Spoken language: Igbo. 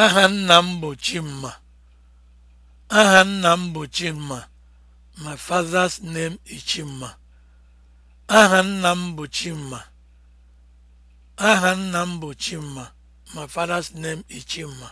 Aha nna m bụ Chimma. Aha nna m mma My father's name